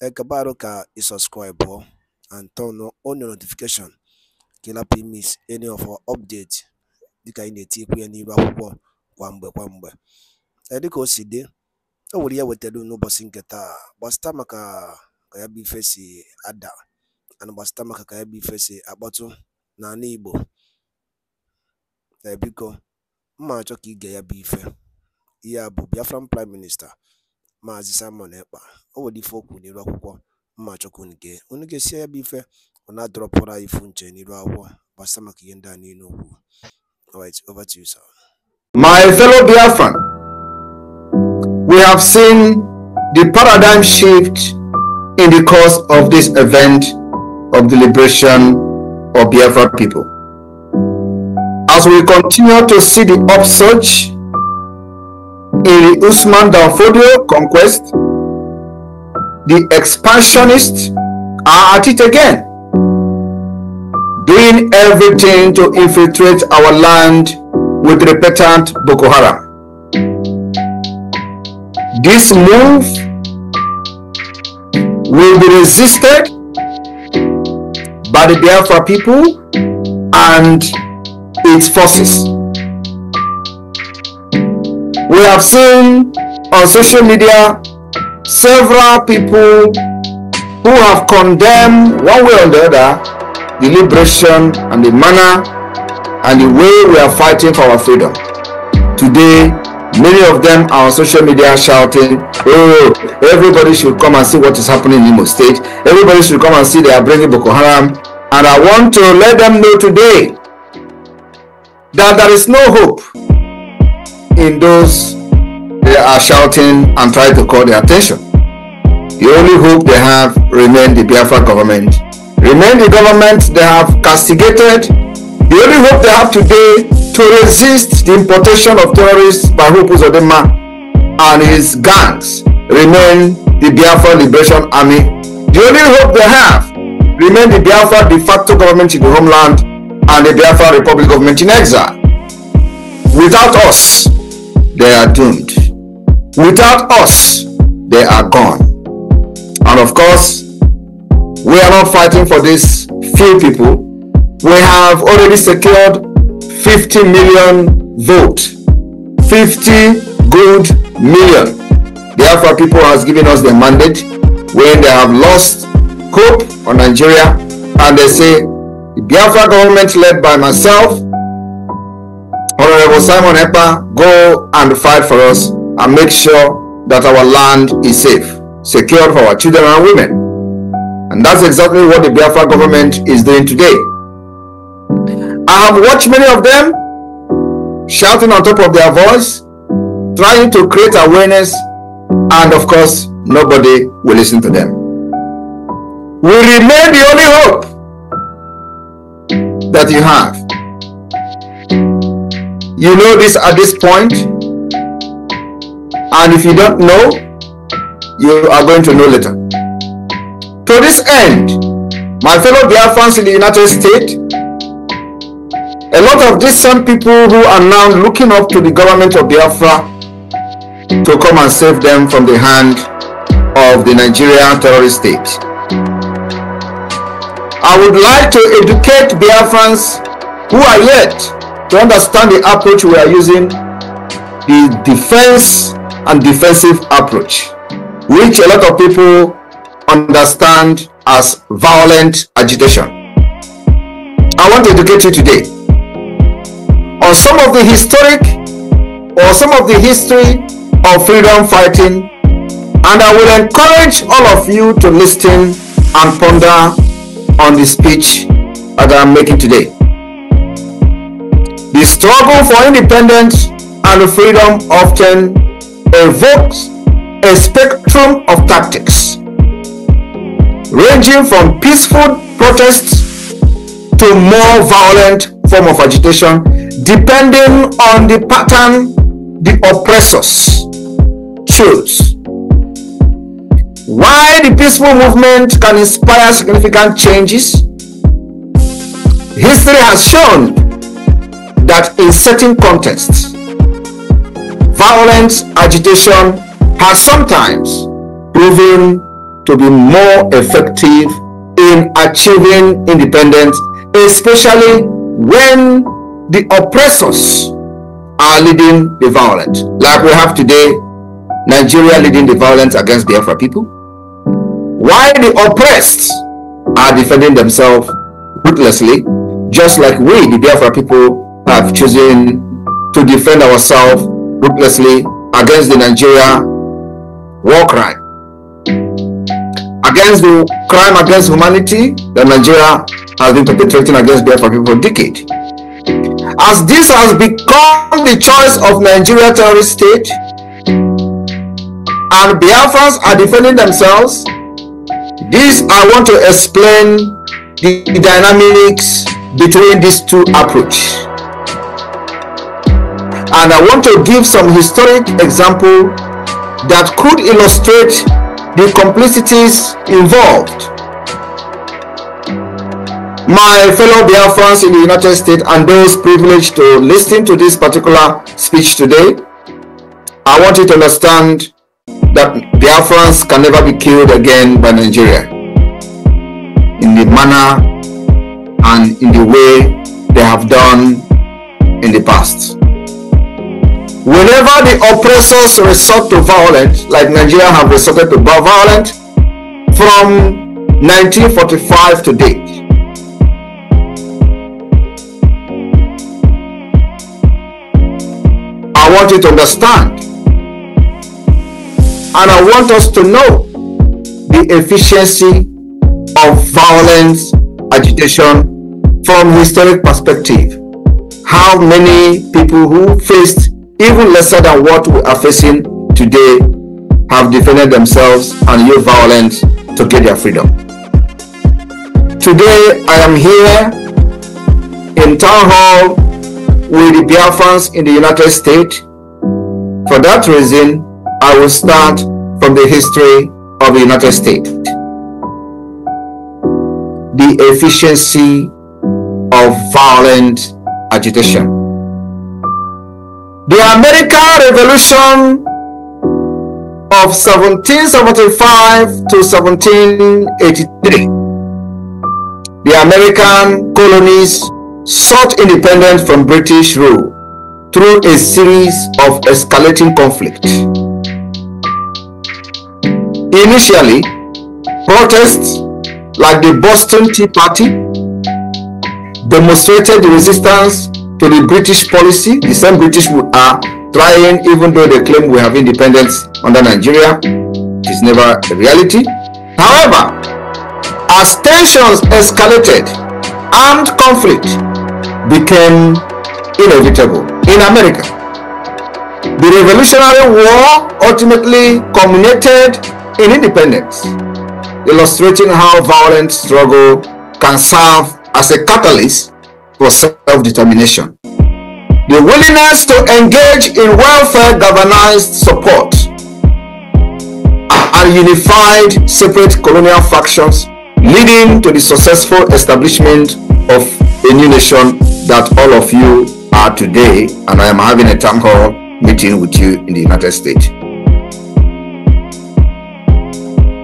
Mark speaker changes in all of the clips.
Speaker 1: qué ka i subscribe and turn on your notification kila ị any of our update dịka anyị na-etikwu ya n'iru akwụkwọ kwa mgbe kwa mgbe edika o si o nwere ya e wetara n'ụbọchị nke taa gbasịta maka ka ya bụ ife si ada ana gbasịta maka ka ya bụ ife si akpọtụ n'ala Igbo ebiko mma achọ ka ige ya bụ ife ihe a bụ Biafran prime minista Maazị Simon Ekpa o nwere ife o kwuru akwụkwọ mma chọkwu unu unu gesie ya bụ ife ọ na-adọrọpụrụ anyị ifu nche n'iru akwụkwọ gbasa maka ihe ndị a niile alright over to you sir my fellow biafran
Speaker 2: we have seen the paradigm shift in the course of this event of the liberation of biafra people as we continue to see the upsurge Iri Usman Danfodio conquest, the expansionists are at it again, doing everything to infiltrate our land with repentant Boko Haram. This move will be resisted by the Biafra people and its forces. We have seen on social media several people who have condemned one way or the other the liberation and the manner and the way we are fighting for our freedom. Today, many of them are on social media shouting, oh, everybody should come and see what is happening in Imo State. Everybody should come and see they are bringing Boko Haram. And I want to let them know today that there is no hope in those they are shouting and trying to call their attention. The only hope they have remain the Biafra government. Remain the government they have castigated. The only hope they have today to resist the importation of terrorists by Hopu Zodema and his gangs remain the Biafra Liberation Army. The only hope they have remain the Biafra de facto government in the homeland and the Biafra Republic government in exile. Without us, they are doomed. Without us, they are gone. And of course, we are not fighting for these few people. We have already secured 50 million vote, 50 good million. The Alpha people has given us the mandate when they have lost hope on Nigeria and they say, the Biafra government led by myself Honorable Simon Epa, go and fight for us and make sure that our land is safe, secure for our children and women. And that's exactly what the Biafra government is doing today. I have watched many of them shouting on top of their voice, trying to create awareness, and of course, nobody will listen to them. We remain the only hope that you have you know this at this point, and if you don't know, you are going to know later. To this end, my fellow Biafrans in the United States, a lot of these same people who are now looking up to the government of Biafra to come and save them from the hand of the Nigerian terrorist state. I would like to educate Biafrans who are yet to understand the approach we are using, the defense and defensive approach, which a lot of people understand as violent agitation. I want to educate you today on some of the historic or some of the history of freedom fighting and I will encourage all of you to listen and ponder on the speech that I'm making today. The struggle for independence and freedom often evokes a spectrum of tactics, ranging from peaceful protests to more violent form of agitation, depending on the pattern the oppressors choose. Why the peaceful movement can inspire significant changes, history has shown that in certain contexts, violent agitation has sometimes proven to be more effective in achieving independence, especially when the oppressors are leading the violence, like we have today, Nigeria leading the violence against the Afro people, while the oppressed are defending themselves ruthlessly, just like we, the Biafra people, have chosen to defend ourselves ruthlessly against the Nigeria war crime, against the crime against humanity that Nigeria has been perpetrating against Biafra people for decades. As this has become the choice of Nigeria terrorist state, and Biafrans are defending themselves, this I want to explain the, the dynamics between these two approaches and I want to give some historic example that could illustrate the complicities involved. My fellow Biafrans in the United States and those privileged to listen to this particular speech today, I want you to understand that Biafrans can never be killed again by Nigeria in the manner and in the way they have done in the past. Whenever the oppressors resort to violence, like Nigeria have resorted to violence from 1945 to date, I want you to understand and I want us to know the efficiency of violence agitation from historic perspective. How many people who faced even lesser than what we are facing today, have defended themselves and used violence to get their freedom. Today, I am here in town hall with the Biafrans in the United States. For that reason, I will start from the history of the United States. The efficiency of violent agitation. The American Revolution of 1775 to 1783. The American colonies sought independence from British rule through a series of escalating conflict. Initially, protests like the Boston Tea Party demonstrated resistance to the British policy, the same British who are trying, even though they claim we have independence under Nigeria, it is never a reality. However, as tensions escalated, armed conflict became inevitable in America. The Revolutionary War ultimately culminated in independence, illustrating how violent struggle can serve as a catalyst for self-determination. The willingness to engage in welfare-governized support and unified separate colonial factions leading to the successful establishment of a new nation that all of you are today and I am having a town hall meeting with you in the United States.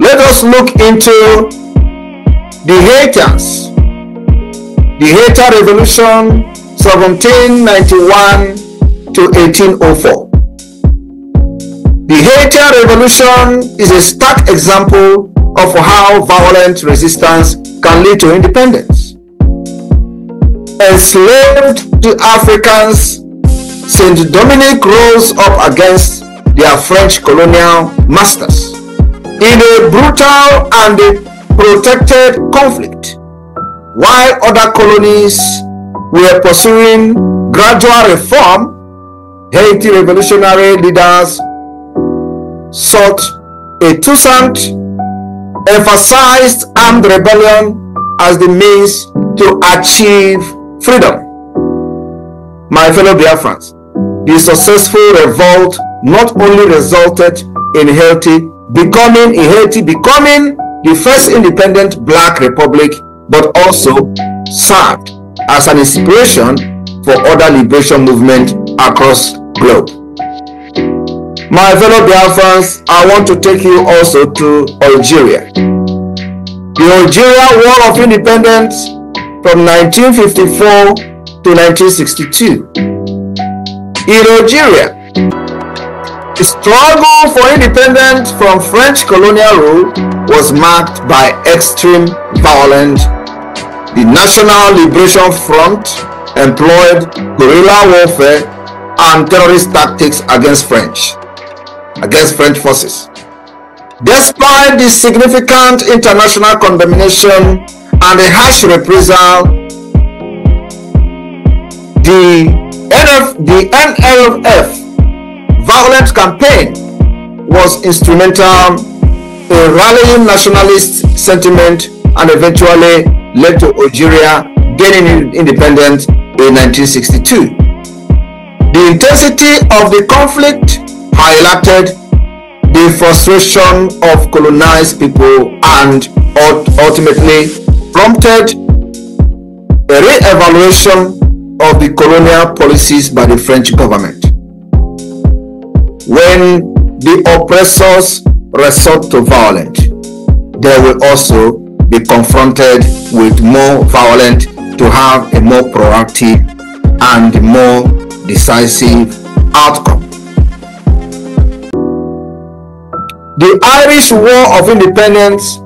Speaker 2: Let us look into the haters the Haitian Revolution 1791 to 1804. The Haitian Revolution is a stark example of how violent resistance can lead to independence. Enslaved Africans Saint Dominic rose up against their French colonial masters in a brutal and protected conflict. While other colonies were pursuing gradual reform, Haiti revolutionary leaders sought a Toussaint emphasized armed rebellion as the means to achieve freedom. My fellow dear friends, the successful revolt not only resulted in Haiti becoming in Haiti becoming the first independent black republic but also served as an inspiration for other liberation movements across globe. My fellow Biafrans, I want to take you also to Algeria. The Algeria War of Independence from 1954 to 1962. In Algeria, the struggle for independence from French colonial rule was marked by extreme violence. The National Liberation Front employed guerrilla warfare and terrorist tactics against French, against French forces. Despite the significant international condemnation and the harsh reprisal, the, NF, the NLF violent campaign was instrumental in rallying nationalist sentiment and eventually led to Algeria gaining independence in 1962. The intensity of the conflict highlighted the frustration of colonized people and ultimately prompted a re-evaluation of the colonial policies by the French government when the oppressors resort to violence, they will also be confronted with more violence to have a more proactive and more decisive outcome. The Irish War of Independence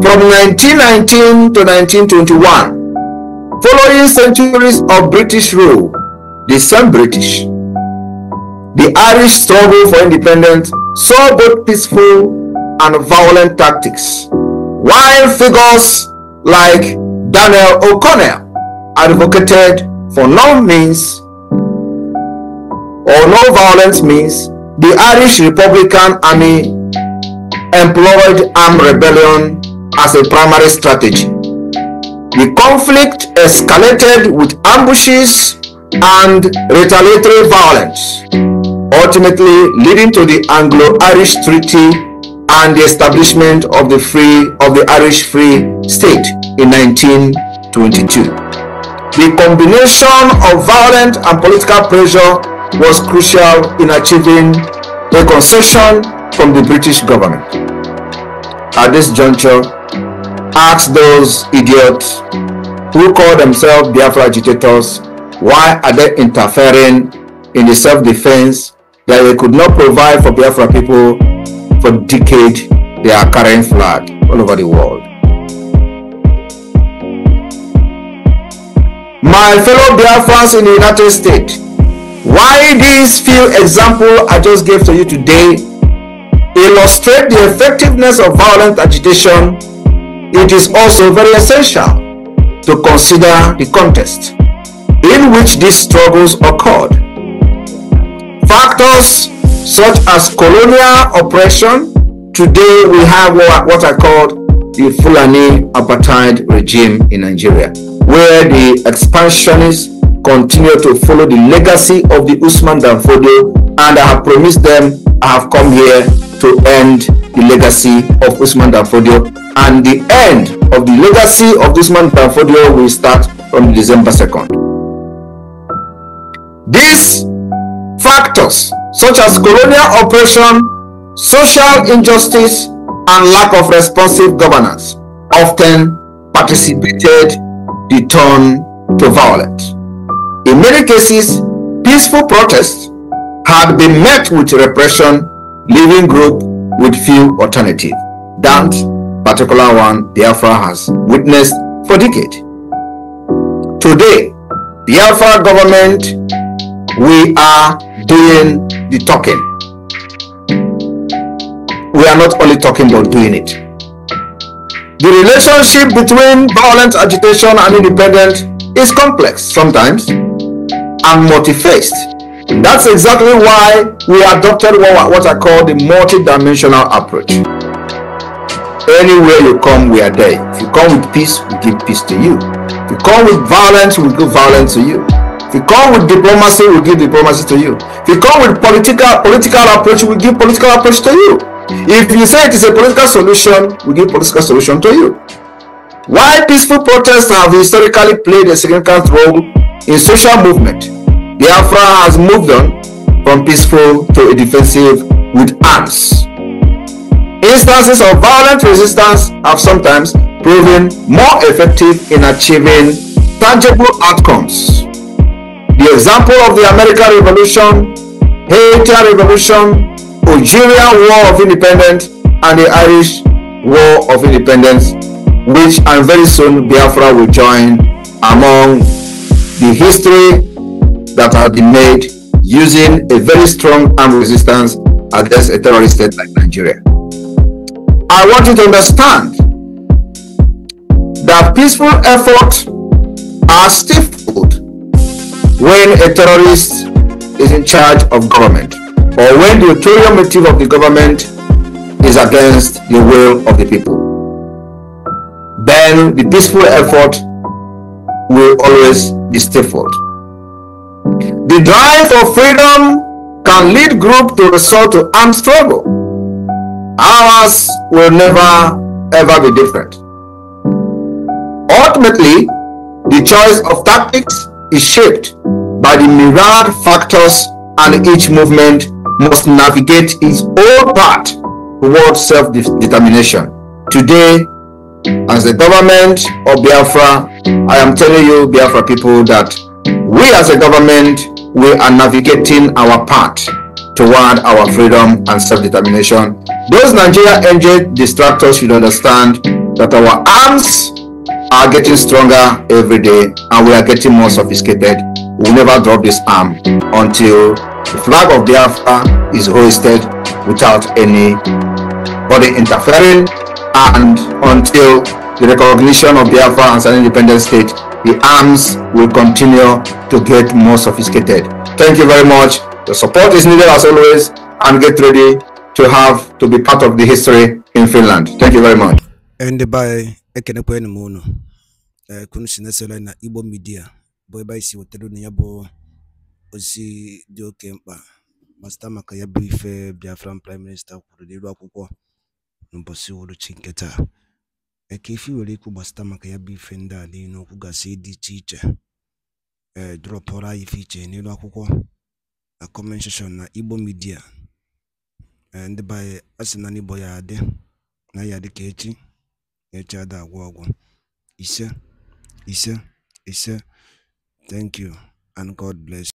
Speaker 2: from 1919 to 1921, following centuries of British rule, the same British the Irish struggle for independence saw both peaceful and violent tactics, while figures like Daniel O'Connell advocated for no means or no violence means the Irish Republican Army employed armed rebellion as a primary strategy. The conflict escalated with ambushes and retaliatory violence ultimately leading to the Anglo-Irish Treaty and the establishment of the free of the Irish Free State in 1922. The combination of violent and political pressure was crucial in achieving concession from the British government. At this juncture, ask those idiots who call themselves Biafra agitators why are they interfering in the self-defense that they could not provide for Biafra people for decades they are carrying flag all over the world. My fellow Biafrans in the United States, why these few examples I just gave to you today illustrate the effectiveness of violent agitation, it is also very essential to consider the context in which these struggles occurred Factors such as colonial oppression. Today we have what, are I the Fulani apartheid regime in Nigeria, where the expansionists continue to follow the legacy of the Usman Danfodio, and I have promised them I have come here to end the legacy of Usman Danfodio, and the end of the legacy of Usman Danfodio will start from December 2nd. This factors such as colonial oppression, social injustice, and lack of responsive governance often participated the turn to violence. In many cases, peaceful protests had been met with repression, leaving group with few alternatives. That particular one Biafra has witnessed for decades. Today, Biafra government we are doing the talking. We are not only talking but doing it. The relationship between violent agitation and independence is complex sometimes and multi-faced. That's exactly why we adopted what, I call the multi-dimensional approach. Anywhere you come, we are there. If you come with peace, we give peace to you. If you come with violence, we give violence to you. If you come with diplomacy, we'll give diplomacy to you. If you come with political political approach, we'll give political approach to you. If you say it is a political solution, we give political solution to you. Why peaceful protests have historically played a significant role in social movement, Biafra has moved on from peaceful to a defensive with arms. Instances of violent resistance have sometimes proven more effective in achieving tangible outcomes. The example of the American Revolution, Haitian Revolution, Algerian War of Independence, and the Irish War of Independence, which and very soon Biafra will join among the history that have been made using a very strong armed resistance against a terrorist state like Nigeria. I want you to understand that peaceful efforts are stifled when a terrorist is in charge of government or when the ulterior motive of the government is against the will of the people, then the peaceful effort will always be stifled. The drive for freedom can lead groups to resort to armed struggle. Ours will never ever be different. Ultimately, the choice of tactics is shaped by the myriad factors, and each movement must navigate its own path toward self determination. Today, as the government of Biafra, I am telling you, Biafra people, that we as a government, we are navigating our path toward our freedom and self-determination. Those Nigeria NJ distractors should understand that our arms are getting stronger every day and we are getting more sophisticated. We will never drop this arm until the flag of Biafra is hoisted without any body interfering and until the recognition of Biafra as an independent state, the arms will continue to get more sophisticated. Thank you very much. The support is needed as always and get ready to have to be part of the history in Finland. Thank you very much.
Speaker 1: And by ekenekwanụ m unu ee eh, kunu na Igbo midia, bụ ebe anyị si wetara unu ya bụ ozi dị oke mkpa ma maka ya bụ ife Biafran prime minista kwuru n'elu akwụkwọ n'ụbọchị uhuruchi nke taa eke ife were ikwu gbasta maka ya bụ ife ndị a niile okwu gasị dị iche iche ee eh, dropọrọ anyị ife iche n'elu akwụkwọ na comment na Igbo midia. Eh, ndị be asị na n'Igbo ya adị na ya adị ka echi echi ada agwọ ọgwụ ise ise ise thank you and god bless